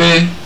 fe